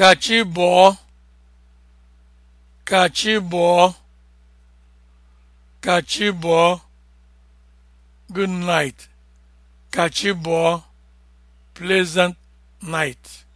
ka chi bọọ good night ka chi bọọ pleasant night